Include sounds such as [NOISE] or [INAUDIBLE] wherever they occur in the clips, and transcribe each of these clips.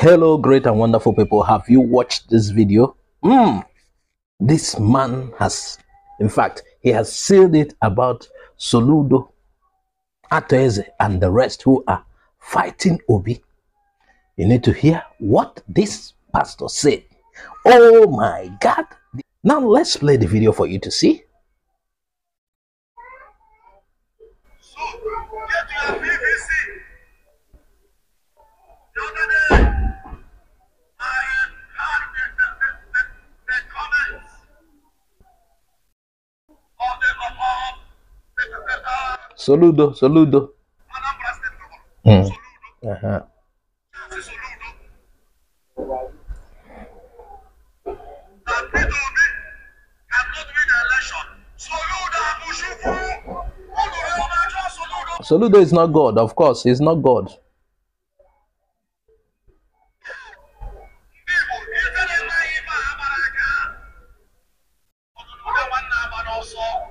hello great and wonderful people have you watched this video mm, this man has in fact he has sealed it about soludo atoeze and the rest who are fighting obi you need to hear what this pastor said oh my god now let's play the video for you to see Saludo, saludo. Mm. Ajá. Saludo is not God, of course, he's not God.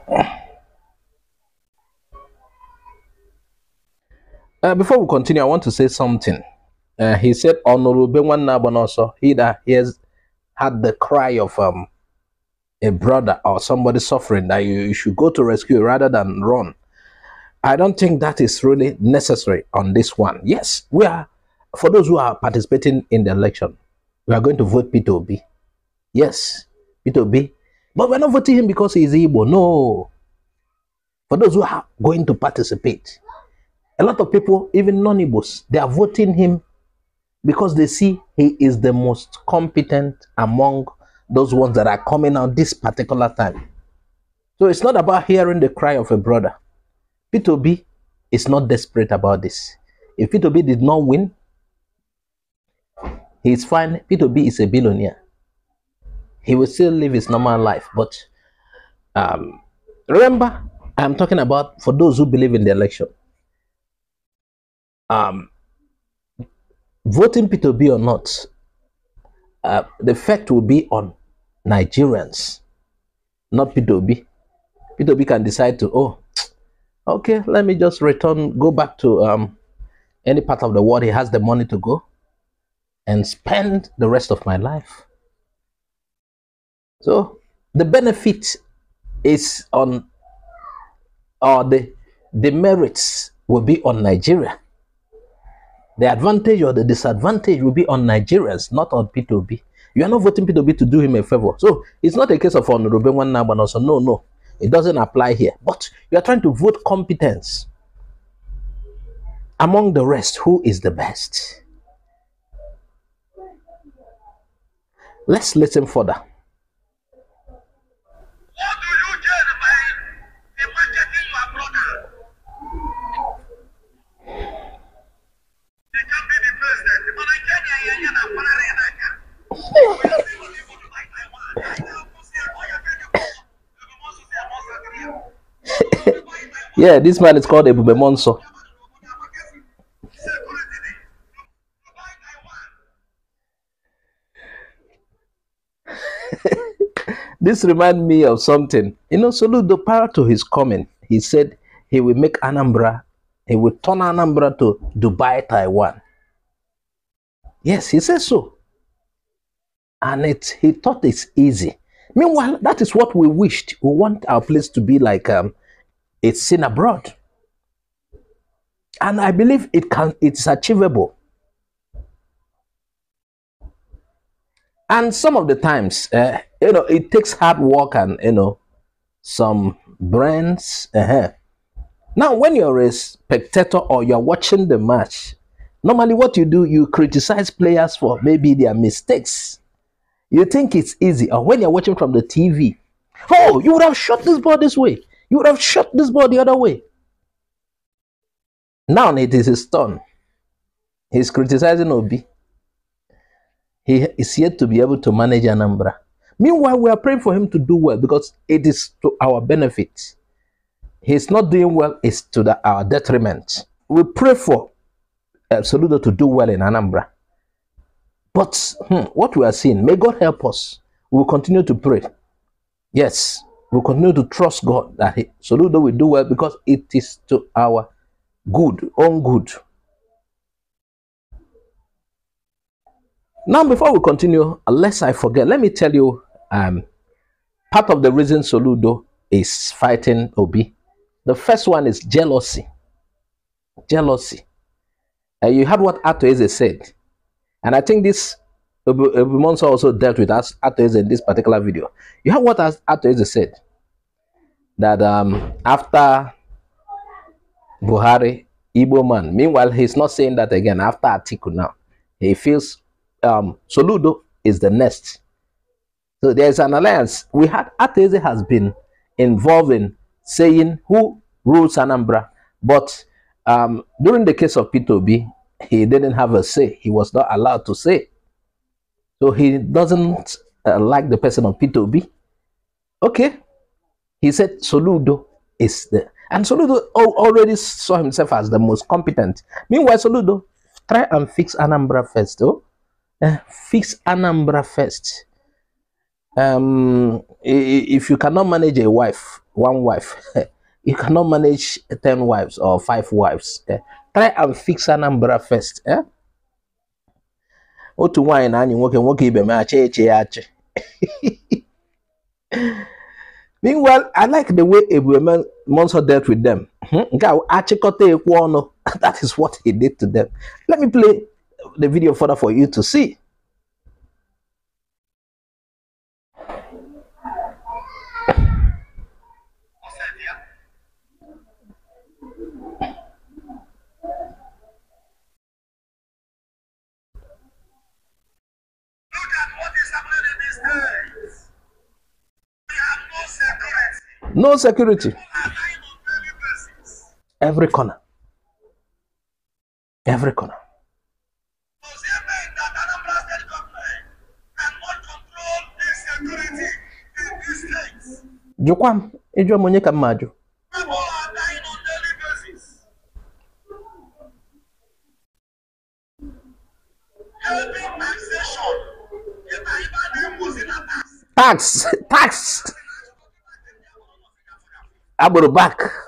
Hmm. Uh, before we continue, I want to say something. Uh, he said, Honorable Benwan Nabonoso, he that hears had the cry of um, a brother or somebody suffering that you, you, should go to rescue rather than run. I don't think that is really necessary on this one. Yes, we are, for those who are participating in the election, we are going to vote P2B. Yes, P2B. But we're not voting him because he's Igbo. No. For those who are going to participate, a lot of people, even non-Igbos, they are voting him because they see he is the most competent among those ones that are coming out this particular time. So it's not about hearing the cry of a brother. P2B is not desperate about this. If P2B did not win, he is fine. P2B is a billionaire. He will still live his normal life. But um, remember, I'm talking about for those who believe in the election um, voting P2B or not, uh, the effect will be on Nigerians, not P2B. P2B can decide to, oh, [TSK] okay, let me just return, go back to um, any part of the world he has the money to go and spend the rest of my life. So the benefit is on, or the, the merits will be on Nigeria. The advantage or the disadvantage will be on Nigerians, not on P2B. You are not voting P2B to do him a favor. So it's not a case of Honorable One Naban also. No, no. It doesn't apply here. But you are trying to vote competence. Among the rest, who is the best? Let's listen further. Yeah, this man is called Ebube Monso. [LAUGHS] this reminds me of something. You know, Soludo, prior to his coming, he said he will make Anambra, he will turn Anambra to Dubai, Taiwan. Yes, he says so. And it, he thought it's easy. Meanwhile, that is what we wished. We want our place to be like um, it's seen abroad. And I believe it can, it's achievable. And some of the times, uh, you know, it takes hard work and, you know, some brains. Uh -huh. Now, when you're a spectator or you're watching the match, normally what you do, you criticize players for maybe their mistakes. You think it's easy. Or when you're watching from the TV, oh, you would have shot this ball this way. You would have shot this ball the other way. Now it is his turn. He's criticizing Obi. He is yet to be able to manage Anambra. Meanwhile, we are praying for him to do well because it is to our benefit. He's not doing well, it's to the, our detriment. We pray for uh, Saludo to do well in Anambra. But hmm, what we are seeing, may God help us. We will continue to pray. Yes, we continue to trust God that He Soludo will do well because it is to our good, own good. Now, before we continue, unless I forget, let me tell you um, part of the reason Soludo is fighting Obi. The first one is jealousy. Jealousy. Uh, you heard what Ato Eze said. And I think this Monsa also dealt with us Atoeze in this particular video. You have what Atoeze said that um, after Buhari, Igbo man. Meanwhile, he's not saying that again after Atiku now. He feels um, Soludo is the next. So there's an alliance. We had Ateze has been involved in saying who rules Anambra, but um, during the case of P2B, he didn't have a say. He was not allowed to say. So he doesn't uh, like the person on P2B. Okay. He said Soludo is the and Soludo already saw himself as the most competent. Meanwhile, Soludo, try and fix Anambra first, though. Uh, eh, fix Anambra first. Um, if you cannot manage a wife, one wife, [LAUGHS] you cannot manage 10 wives or five wives. Uh, try and fix Anambra first. Eh? otu nwaanyị na-anyị nwoke nwoke ibe m achị eche ya achị meanwhile i like the way ebueme monso dealt with them hmm? nke a achịkọta ekwe ọnụ [LAUGHS] that is what he did to them let me play the video further for you to see no security every corner every corner. Jụkwa m ịjụọ m onye ka m ajụ tax tax agbèrò back.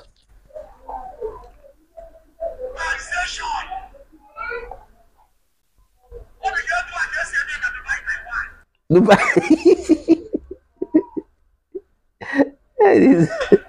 Dubai. [LAUGHS]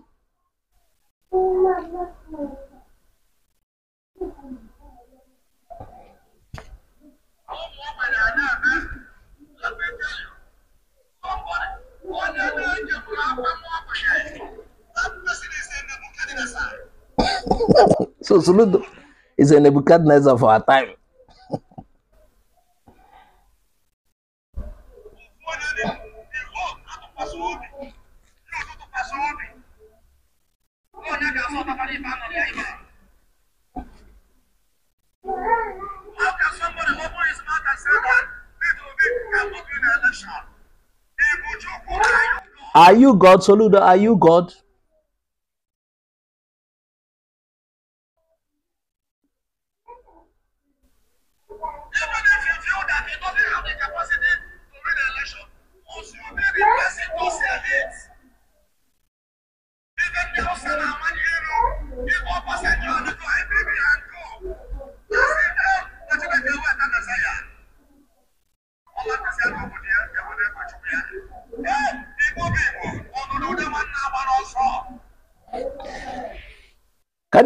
so Soludo is a Nebuchadnezzar for our time. Are you God, Soludo? Are you God?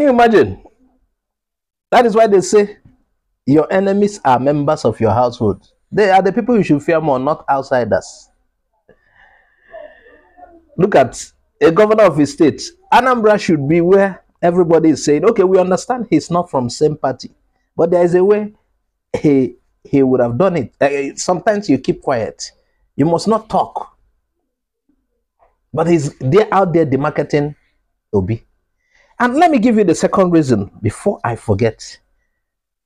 you imagine? That is why they say your enemies are members of your household. They are the people you should fear more, not outsiders. Look at a governor of his state. Anambra should be where everybody is saying, okay, we understand he's not from same party, but there is a way he he would have done it. Uh, sometimes you keep quiet. You must not talk. But he's they're out there demarketing Obi. And let me give you the second reason before I forget.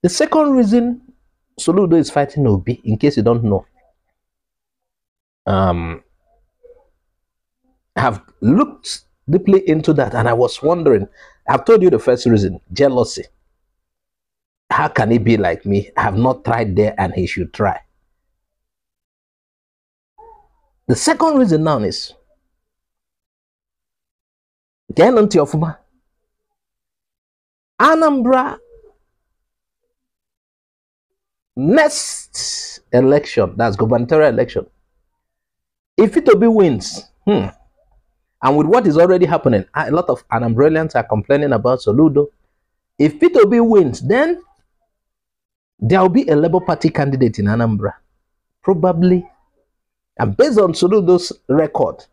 The second reason Soludo is fighting Obi, in case you don't know, um, I have looked deeply into that and I was wondering. I've told you the first reason jealousy. How can he be like me? I have not tried there and he should try. The second reason now is Genanti Ofuma Anambra next election, that's gubernatorial election, if Itobi wins, hmm, and with what is already happening, a lot of Anambralians are complaining about Soludo. If Itobi wins, then there will be a Labour Party candidate in Anambra, probably. And based on Soludo's record,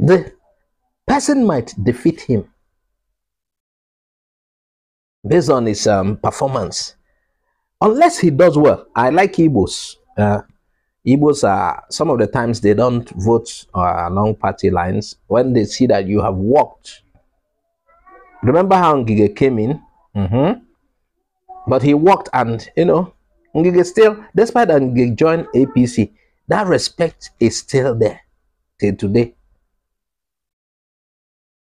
the person might defeat him based on his um, performance. Unless he does well. I like Igbos. Uh, Igbos are, some of the times they don't vote uh, along party lines when they see that you have worked. Remember how Ngige came in? Mm -hmm. But he worked and, you know, Ngige still, despite that Ngige joined APC, that respect is still there till today.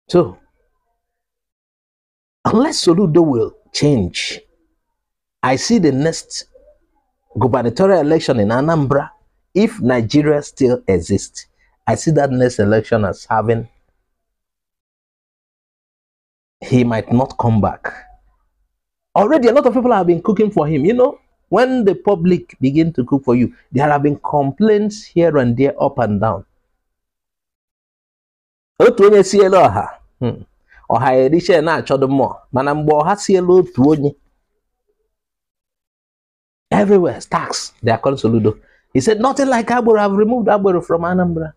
So, unless Soludo will change, I see the next gubernatorial election in Anambra, if Nigeria still exists, I see that next election as having he might not come back. Already a lot of people have been cooking for him. You know, when the public begin to cook for you, there have been complaints here and there, up and down. Hmm. ọha eriche na-achọdụ mmụọ mana mgbe ọha si elu otu onye everywhere stacks he said nothing like i have removed agbero from anambra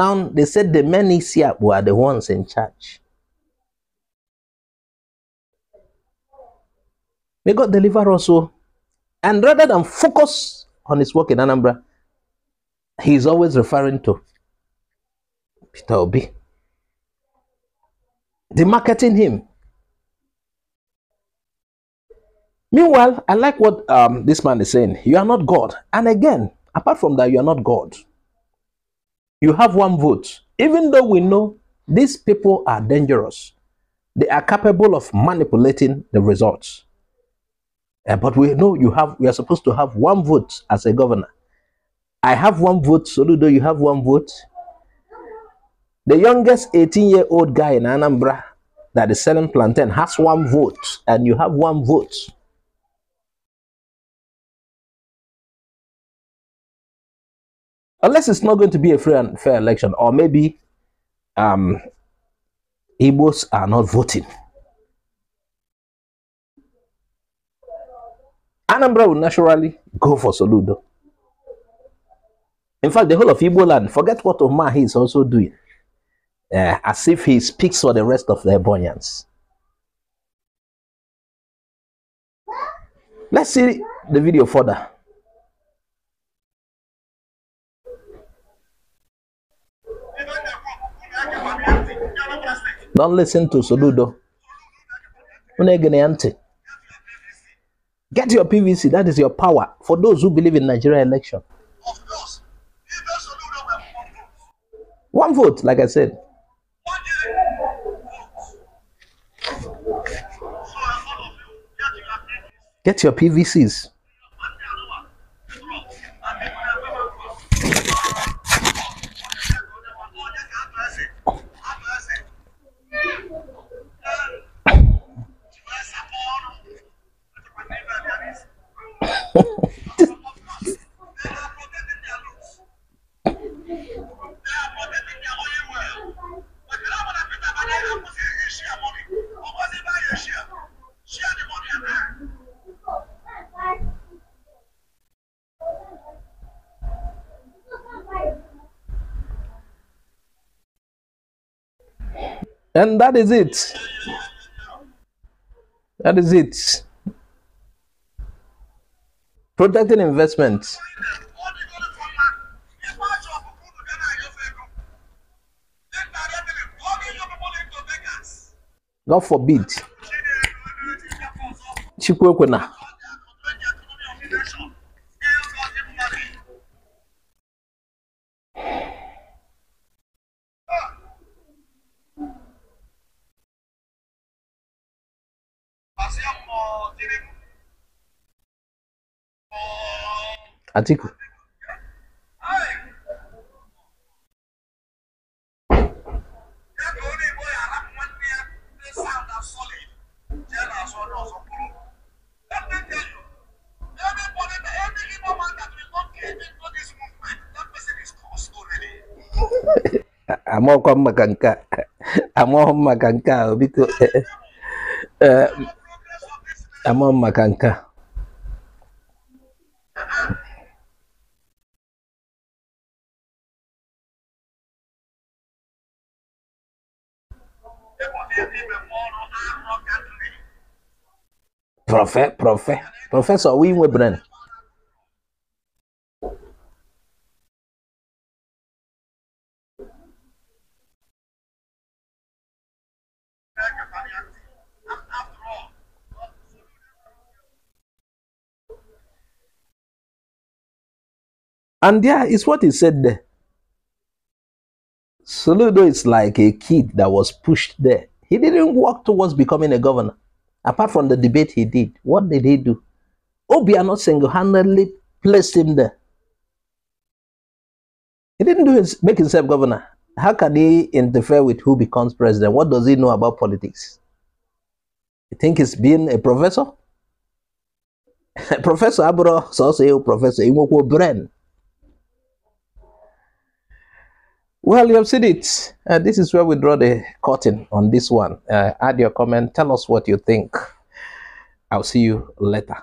now they said the men isi akpụ are the ones in charge may god deliver us all. Oh. and rather than focus on his work in anambra he is always referring to peter obi the marketing him. Meanwhile, I like what um, this man is saying. You are not God. And again, apart from that, you are not God. You have one vote. Even though we know these people are dangerous, they are capable of manipulating the results. Uh, but we know you have we are supposed to have one vote as a governor. I have one vote, Soludo, you have one vote. The youngest 18 year old guy in Anambra that is selling plantain has one vote, and you have one vote. Unless it's not going to be a free and fair election, or maybe um, Igbos are not voting. Anambra will naturally go for Soludo. In fact, the whole of Igbo land, forget what Omar is also doing uh, as if he speaks for the rest of the Ebonians. Let's see the video further. Don't listen to Soludo. Get your PVC. That is your power for those who believe in Nigeria election. One vote, like I said. Get your PVCs. And that is it. That is it. Protecting investments. God forbid. Chikwuekwena. Atiku. amo kwa maka nke amaghị m maka a biko eh, eh, eh, amaghị Professor, prọfẹ professor, wo inwe bren And there is what he said there. Saludo is like a kid that was pushed there. He didn't walk towards becoming a governor. apart from the debate he did, what did he do? Obiano single-handedly placed him there. He didn't do his, make himself governor. How can he interfere with who becomes president? What does he know about politics? You think he's being a professor? [LAUGHS] professor Abro, so also professor, he will brain. Well, you have seen it. Uh, this is where we draw the curtain on this one. Uh, add your comment. Tell us what you think. I'll see you later.